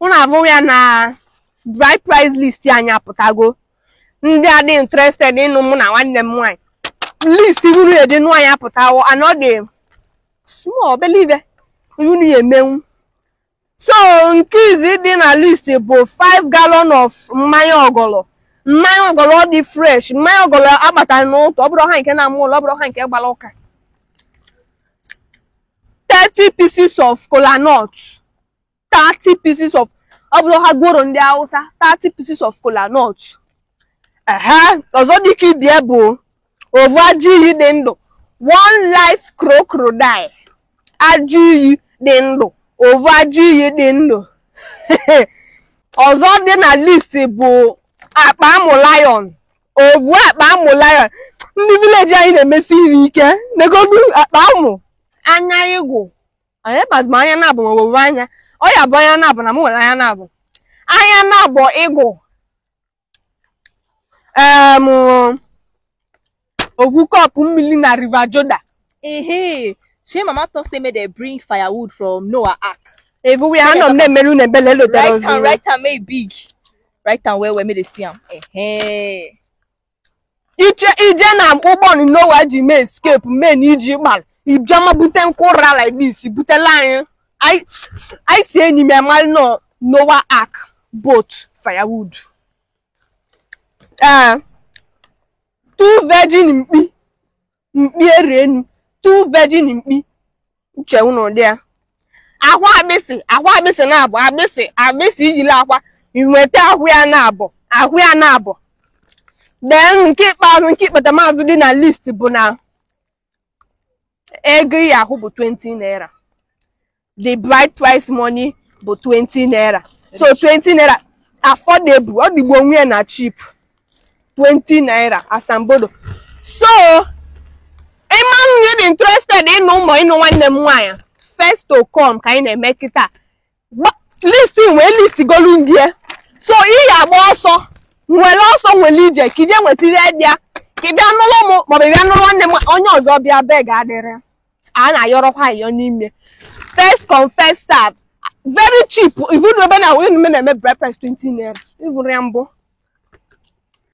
ụnụ abụ ya na bride price list anyị apụtago ndị adị interested ịnụ mụ na nwanne m nwaanyị list uru dị nụ anyị apụtawo and ọ dị small belive unu ya emenwu so nke izi dị na list bụ 5 gallon of mmanya ọgọlọ mmanya ọgọlọ dị fresh mmanya ọgọlọ agbatara n'ụtọ ọ bụrụ ha nke na-amụ ụlọ ọ bụrụ ha nke gbara ụka 30 pieces of kolanut 30 pieces of ọ bụrụ ha gworo ndị Hausa 30 pieces of kolanut ehe ọzọ dịka ibie bụ ovu ajị iyi dị ndụ one life crocodile ajị iyi dị ndụ ovu ajị iyi dị ndụ ọzọ dị na list bụ akpa amụ lion ovu akpa amụ lion ndị vileji anyị na-emesi iri ike negodu akpa amụ anya ịgwụ anyị bazụ anya na-abụ ma owuwe anya ọ bụ anya na-abụ na m nwere anya na-abụ anya na-abụ ịgụ em ogu kọpụ mmiri na riva joda. ehe shey mama talk say make dem bring firewood from Noah Ark evu we anọ m na-emere unu ebele lotere ozi right right and make big right and well well make they see am ije na ụgbọ Noah ji mee escape mee na iji gbara if Jama Buten Kora like this, Butelion, I I say any me mal no Noah Ark boat firewood. Uh, two virgin mpi mpi rain two virgin mpi uche unu dia akwa agbịsị akwa agbịsị na-abọ agbịsị agbịsị ijila akwa inweta ahụ ya na-abọ ahụ ya na-abọ dee Keep ikpeazụ nke ikpeta maazụ dị na list bụ now. ego ị ahụ bụ 20 naira the bride price money bụ 20 naira so 20 naira affordable ọ dịgbo onwe na cheap 20 naira asambodo so ịma nwunye dị interested ịnụ ụmụ ịnụ nwanne m nwaanyị first to come ka anyị na-eme kịta list wee listigolu ndị ya so ị agba ọsọ nwere ọsọ nwere ije ka ije nwetara ya ka ị bịa nụrụ m maọbụ ị bịa nụrụ nwanne m onye ọzọ bịa bee ga-adịrị a na-ayọrọkwa ayọ n'ime first come first serve very cheap even obena onye nume na-eme breakfast 20 naira ịbụrụ ya mbụ